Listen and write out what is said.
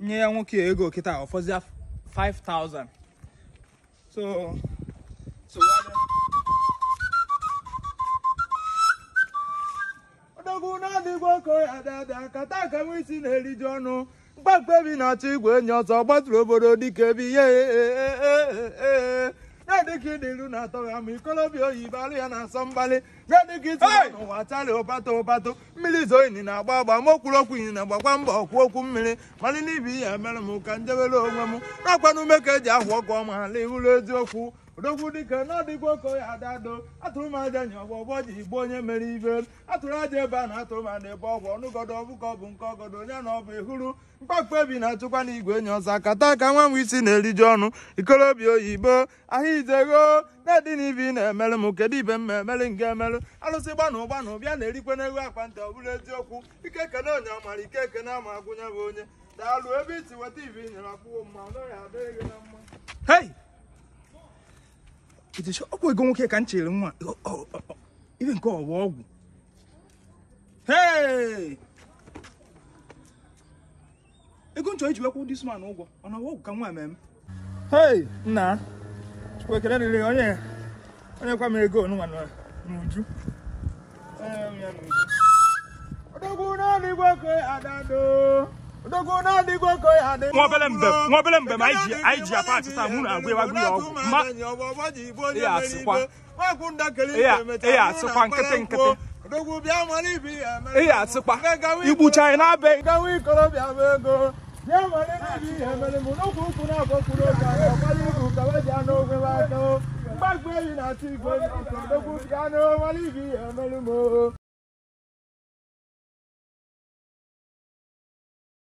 nye ya nwoke ego kịta ọfọzịa 5000 so so na-adịgwa oko ya dada kata aka nwa isi na-eriju ọnụ mkpa mkpebi na-achọ igwe enyi ọzọ gbatụrụ obodo dịka ebe ihe gadịka ịdị iru na atọ ga ama ikolobịa oyibo alụ ya na-asọ mgbalị gadịka iti n'ụwa tali ụbatụ ụbatụ mmiri zoo na-agba agba ma okwurokwu ini na gbakwa okwu okwu mmiri malị n'ibi ya mere m ka njewere onwe m na-akwanụ ume ka eji ahụ ọkụ ọma ala ihuru eziokwu odogwu dike na ọdịgwa adado atụrụ m aja ọgwụ ọgbọgbọ ji igbo onye mere ibe atụrụ aja ebe a na atụrụ m ana ebe ọgwụ ọnụgodo ọ bụ nke ọgodo onye na ọbụ ehuru ihuru ebi na-achụkwa na igwe enyi ọzọ akata ka nwa m isi na-eriju ọnụ ikolobia oyibo ahịa izegho na-edị na ibi na-emelụ m kedu ibe m ma emelụ nke emelụ alụsị gbana gbanụ na ụbịa na-erikwe n'ego akpa ntị ọ bụrụ eziokwu ike kene onye ọmara ike ama agwụnye bụ onye daalụ ebe isi weta nyere akwụkwọ mma adịghị na itechi ọ bụ ego nwoke ka m chere nwa ibe nke ọwa ọgwụ ego nchọ iji wekwụ dis man ụgwọ ọ na ọgwụ ka nwa ememe hei nna chukwekere riri onye onye kwa m ego onụnwa n'uju ọdọgwụ naanị igwe adado wọn bẹlẹ mbẹ wọn bẹlẹ mbẹ ma ayi ayi jia pa ati sisan mun agbe wa gbi wa ma e y'a sikwa e y'a sikwa nkete nkete e y'a sikwa ibu china bẹ. Gbàgbé yìí náà ti gbé ọ̀sán lókùn yánú wálé yìí ẹ̀mẹ́lú mọ́.